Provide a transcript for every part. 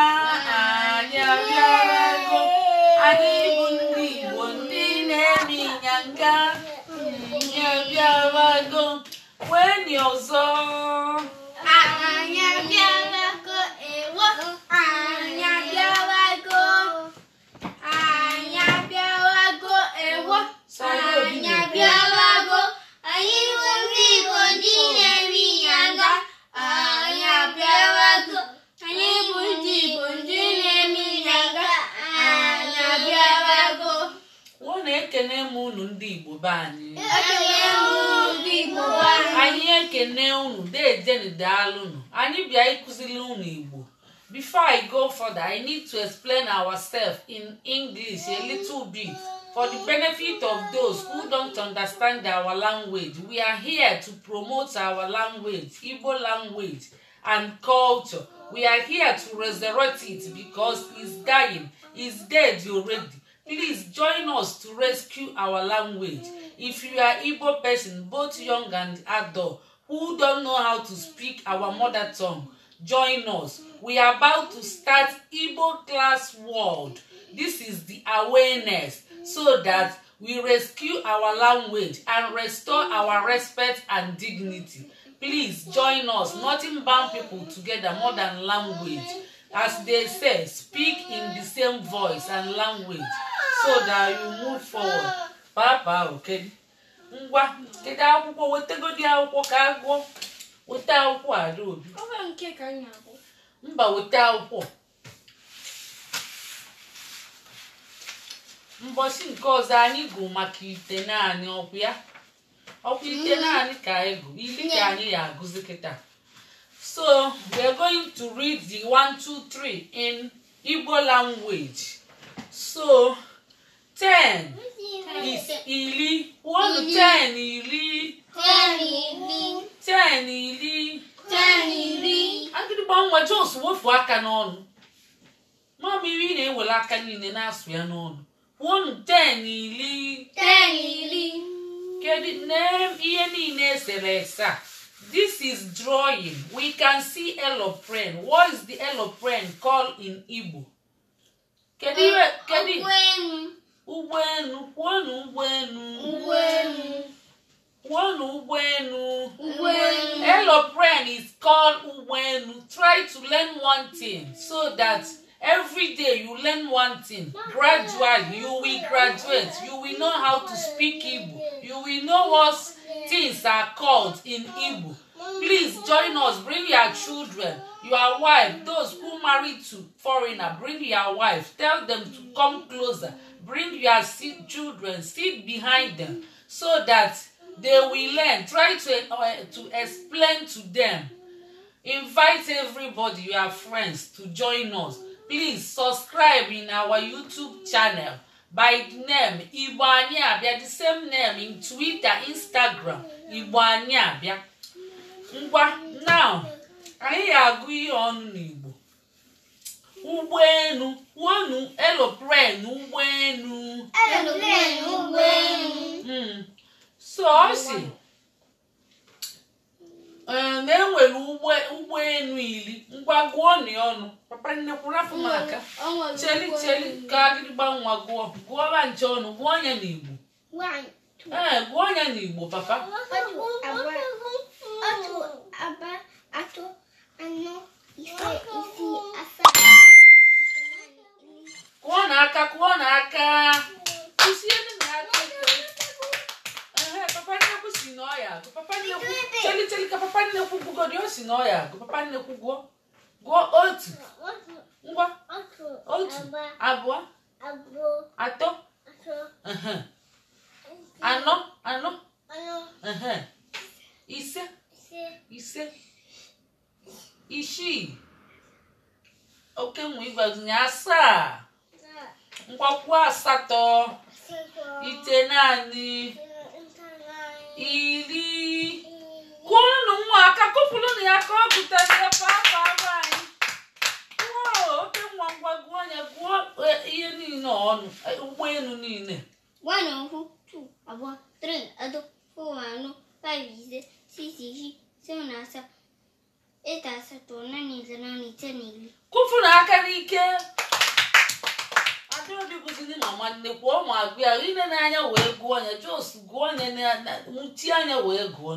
anyị abịarago anyị bụ ndị Igbo ndị na-eme ịnyanga anyị wee wenye ọzọ I need to explain ourselves in English a little bit for the benefit of those who don't understand our language. We are here to promote our language, Igbo language and culture. We are here to resurrect it because it's dying, it's dead already. Please join us to rescue our language. If you are Igbo person, both young and adult, who don't know how to speak our mother tongue, join us. We are about to start Igbo Class World. This is the awareness so that we rescue our language and restore our respect and dignity. Please join us. Nothing bound people together more than language. As they say, speak in the same voice and language so that you move forward. Papa, okay? Ngwa, kedu akwụkwọ wetagodi akwụkwọ ka agụọ. weta akwụkwọ ada obi mba weta akwụkwọ mbọchị nke ọzọ anyị gụ maka ite naanị ọkwụ ya ọkwụ ite mm-hmm. naanị ka anyị gụ ili ka anyị ya agụzi kịta so we're going to read the 1 2 3 in Igbo language so ten is ili one to ten ili ten ili ten ili ten ili agidịgba nwa Jones wofu aka n'ọnụ mamiri na-ewere aka niile na-asụ ya n'ọnụ one ten ili ten ili kedu name ihe niile esere ese a This is drawing. We can see eloprene. What is the eloprene call in Igbo? Kedu kedu ụgbọelu kwụọnụ ụgbọelu ụgbọelu kwụọnụ ụgbọelu ụgbọelu aeroplane is called ụgbọelu try to learn one thing so that every day you learn one thing gradually you will graduate you will know how to speak Igbo you will know what's things are called in Igbo. Please join us. Bring your children, your wife, those who married to foreigner. Bring your wife. Tell them to come closer. Bring your children. Sit behind them so that they will learn. Try to uh, to explain to them. Invite everybody, your friends, to join us. Please subscribe in our YouTube channel. by name igbo anyị abịa the same name in twitter instagram igbo anyị ngwa now anyị ga-agụ ihe ọnụ n'igbo ụgbọelu wonu elopren ụgbọelu hmm. so ọ si Eh, na enwere elu iri ngwa gụọ nị ọnụ papa nnekwuru aka cheli cheli ka agịrịgba nwa gụọ gụọba nche ọnụ gụọ ya n'igbo ee eh, gụọ ya n'igbo papa atụ atọ na ọ ya agụ gụọ gụọ otu ngwa otu abụọ atọ anọ anọ ise ise isii oke nwe ịgbazinye asaa nkwakwu asatọ ite naanị iri kụọnụ nwa aka kụpụrụnụ ya ka ọ gụtazie papa ara anyị gụọ oke nwa ngwa gụọ ya gụọ e, ihe niile ọnụ e, ụgbọelu niile abụọ anọ ise sisi na asatọ naanị na kụfụrụ aka n'ike ndị bụziri mama nnekwu ọ agụ ya ile n'anya wee gụọ ya jos gụọ ya nwụchi anya wee gụọ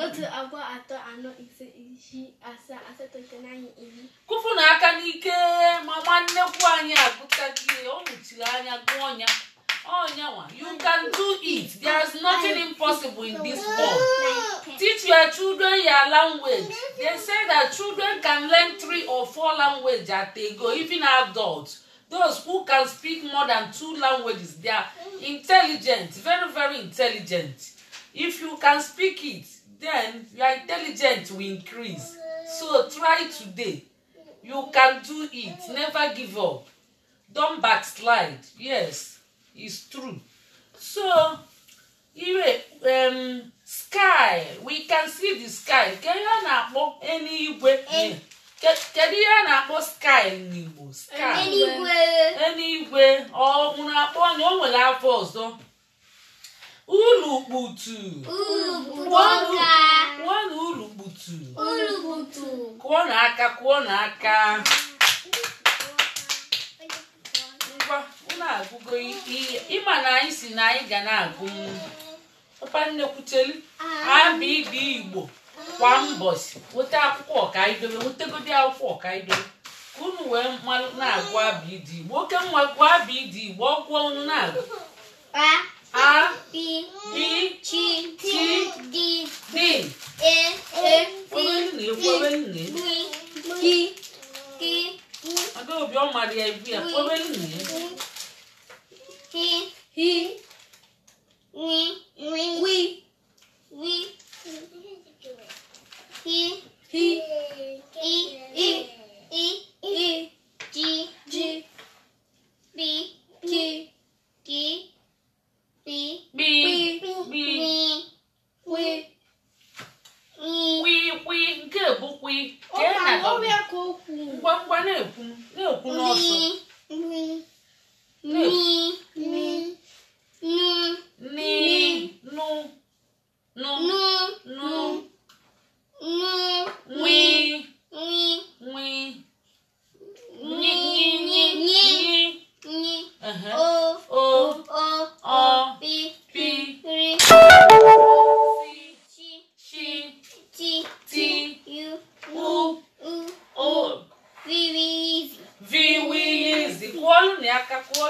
otu abụọ atọ anọ ise isii asaa asatọ iteghete iri. kụfụ na aka n'ike mama nnekwu anyị agụtaghị ọ mụchiri anya gụọ ọnya ọnya nwa you can do it there is nothing impossible in this world teach your children your language they say that children can learn three or four languages at they go even adults those who can speak more than two languages they are intelligent very very intelligent if you can speak it then your intelligence will increase so try today you can do it never give up Don't backslide yes it's true so ire um, sky we can see the sky kedu ihe a na-akpọ kedu ihe a na-akpọ sky n'igbo sky eluigwe eluigwe ọ nwụrụ akpọ anya o nwere afọ ọzọ Urukputu kụọnụ urukputu kụọnụ aka kụọnụ aka ngwa unu agụgo ịma na anyị si na anyị ga na-agụ papa nnekwutelu abụ ah. ibe igbo kwa mbọsi nweta akwụkwọ ọka ọkaidobe wetegodi akwụkwọ ọka ọkaidobe ka unu wee mmalụ na-agụ abụ ịdị igbo oke mma gụọ abụ ịdị igbo ọ ọnụ na-agụ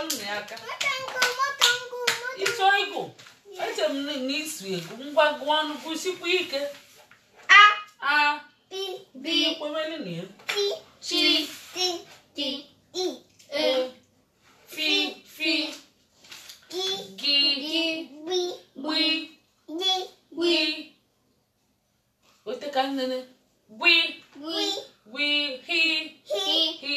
ọlụna ya aka ịchọ ịgụ eche m na isu o ngwa gụọ ọnụ gụsikwa ike a a b kwewere na t t t i e fi fi gi gi gbi gbi gbi ote ka nnene gbi gbi gbi hi hi hi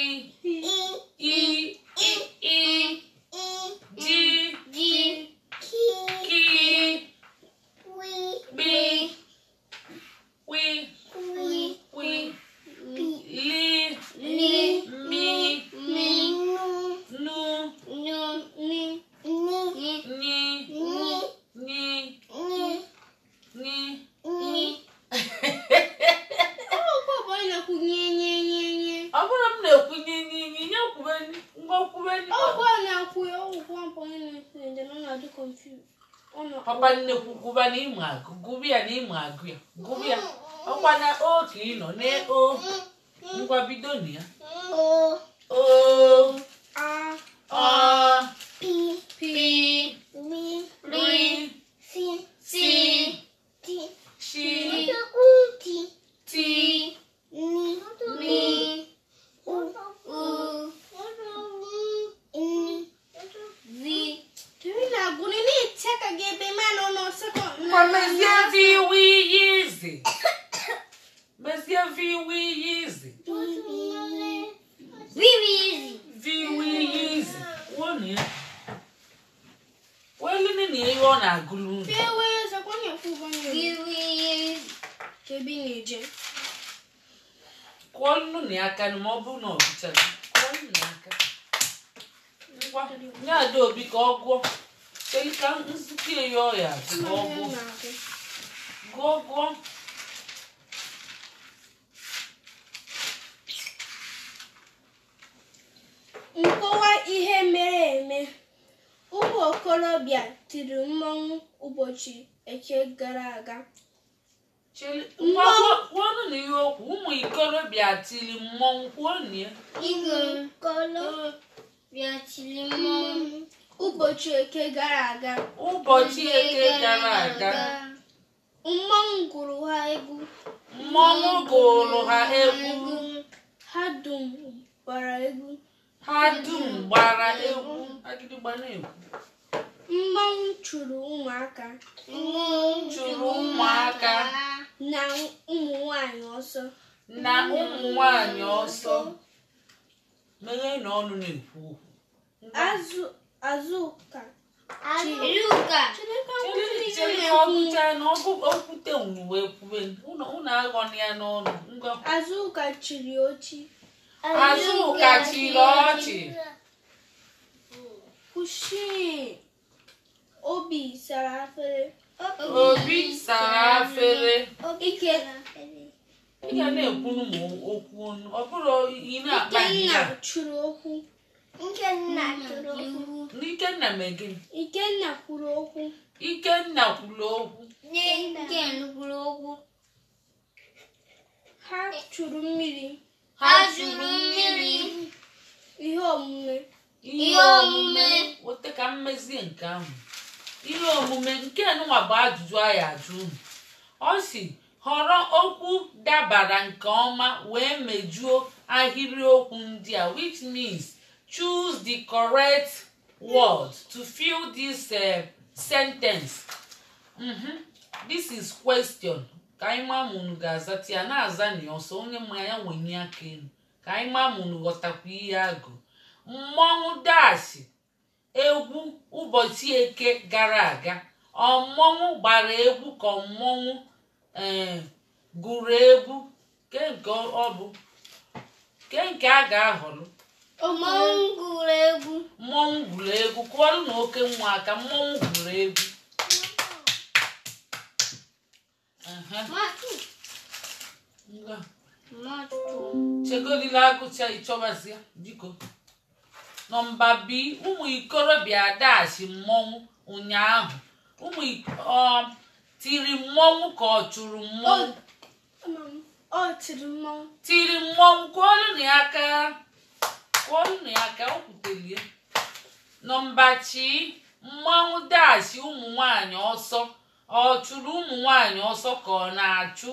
papa nnekwu gụba na ịmụ agụ gụba ya na ịmụ agụ ya gụba ya ọkwa na oke ịnọ na o ngwa bido na ya o nye obi ka ọ gụọ ka nzukọ ya ọya ka ọ gụọ gụọ nkọwa ihe mere eme ụmụ okorobịa tiri mmọnwụ ụbọchị eke gara aga kwuonụ na okwu ụmụ ikorobịa tiri mmọnwụ kwuo na ya bịachiri mmọnwụ ụbọchị eke gara aga ụbọchị eke gara aga mmọnwụ gụrụ ha egwu mmọnwụ gụrụ ha egwu ha dum gbara egwu ha dum gbara egwu mmọnwụ chụrụ ụmụaka mmọnwụ chụrụ ụmụaka na ụmụ nwanyị ọsọ na ụmụ nwanyị ọsọ meghe na ọnụ na-ekwu okwu Azụ Azụka. Chiruka. na okwute unu ya n'ọnụ chiri ọchị. Kushi. Obi sara afere. Obi Ike. ga na ekwu m okwu ọ bụrụ ị na-akpa ihe. okwu. Ikenna kwuru okwu. Ikenna kwuru okwu. Ikenna kwuru okwu. Ikenna kwuru okwu. Ha e chụrụ mmiri. Ha chụrụ mmiri. Ihe omume. Ihe omume. Wote ka mmezie nke ahụ. Ihe omume nke nwa bụ ajụjụ anyị ajụ unu. Ọ si họrọ okwu dabara nke ọma wee mejuo ahịrịokwu ndị a which means choose the correct word to fill this uh, sentence mm-hmm. this is question ka anyị maa ma unu ga-azati ya na-aza na ọsọ onye mmanya nwenye aka elu ka anyị maa ma unu ghọtakwa ihe agụ mmọnwụ dashi egwu ụbọchị eke gara aga ọ gbara egwu ka mmọnwụ eh, gụrụ egwu ke ọ bụ nke a ga-ahọrọ mmọnwụ gwuru egwu mmọnwụ gwuru egwu kụwarụ na oke nwa aka mmọnwụ gwuru egwu chegodila agụcha ịchọbazia biko nọmba b ụmụ ikorobịa dachi mmọnwụ ụnyaahụ ụmụ ọ tiri mmọnwụ ka ọ chụrụ mmọnwụ tiri mmọnwụ kụọrụ na aka kụọ nnu ya ka o kwutelie nọmba chi mmanwụ ụmụ nwanyị ọsọ ọ chụrụ ụmụ nwanyị ọsọ ka ọ na-achụ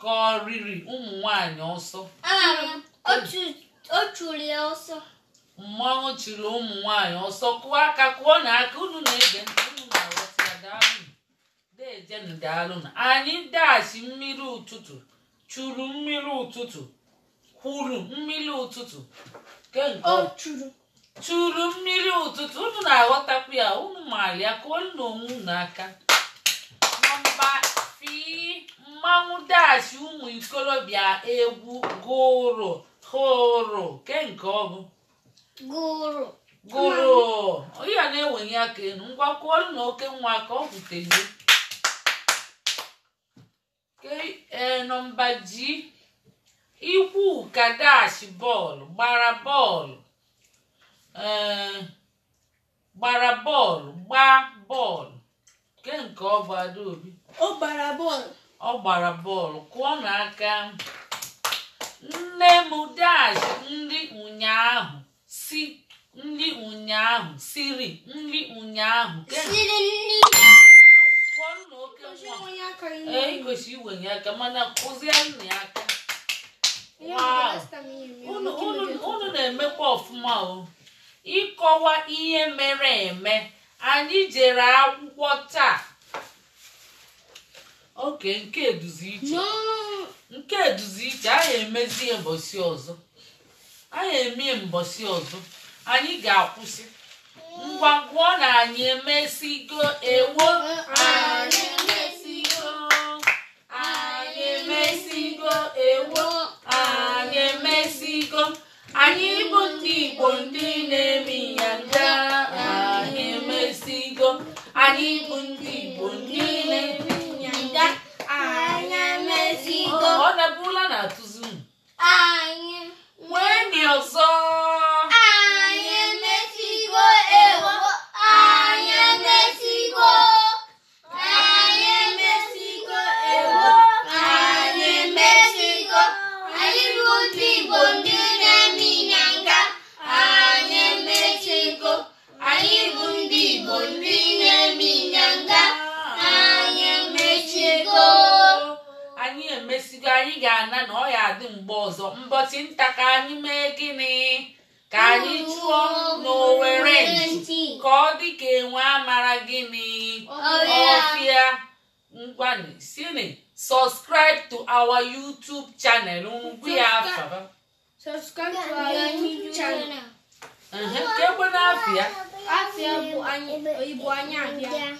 ka ọ riri ụmụ nwanyị ọsọ ya ọsọ mmanwụ chụrụ ụmụ nwanyị ọsọ kụọ aka kụọ na aka unu na-ege unu na anyị mmiri ụtụtụ chụrụ mmiri ụtụtụ kwuru mmiri ụtụtụ chụrụ mmiri ụtụtụ unu na-aghọtakwu ya unu maara ya ka olu na onwe unu aka nọmba fi mmanwụ dachi ụmụ ikorobịa egwu gụrụ hụrụ kenke ọ bụ gụrụ ya na enweghị aka enu, ngwa kwụọrụ na oke nwa ka ọ kwutere eh, nọmba ji ikwu kadash bọọlụ gbara bọọlụ eh, gbara bọọlụ gbaa bọọlụ ke nke ọ bụ Adaobi ọ gbara bọọlụ ọ gbara bọọlụ kụọ n'aka nne m dash nri ụnyaahụ si nri ụnyaahụ siri nri ụnyaahụ kụọ nna oke nwa e kwesịrị iwenye aka mana kụzie nna ya aka unu na-emekwa ọfụma o ịkọwa ihe mere eme anyị jere akwụkwọ taa oke nke eduzi iche nke eduzi iche anyị emezie mbọsị ọzọ anyị emie mbọsị ọzọ anyị ga-akwụsị ngwa ngwa na anyị emesigo ewo anyị emesigo anyị emesigo ewo anyị emesigo anyị bụ ndị Igbo ndị na-emi ya nja anyị emesigo anyị bụ ndị Igbo ndị na-emi ya nja anyị emesigo ọ dabụla na atụzi anyị nwee ndị ọzọ ngwani sini subscribe to our youtube channel ugbu ya afaba subscribe to our youtube channel na afịa afịa bụ anyị abịa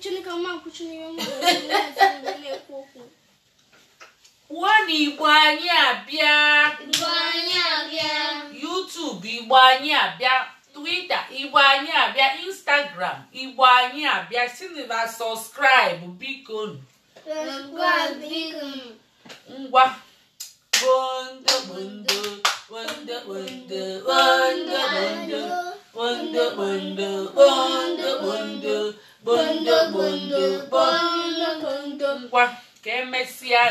chineke n'ime na okwu igbo anyị abịa YouTube igbo anyị abịa Twitter igbo anyị abịa telegram igbo anyị abịa silva sọskraịbụ biko ngwa ngwa ka emesịa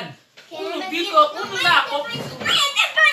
biko unu na